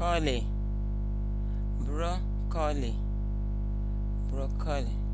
broccoli broccoli broccoli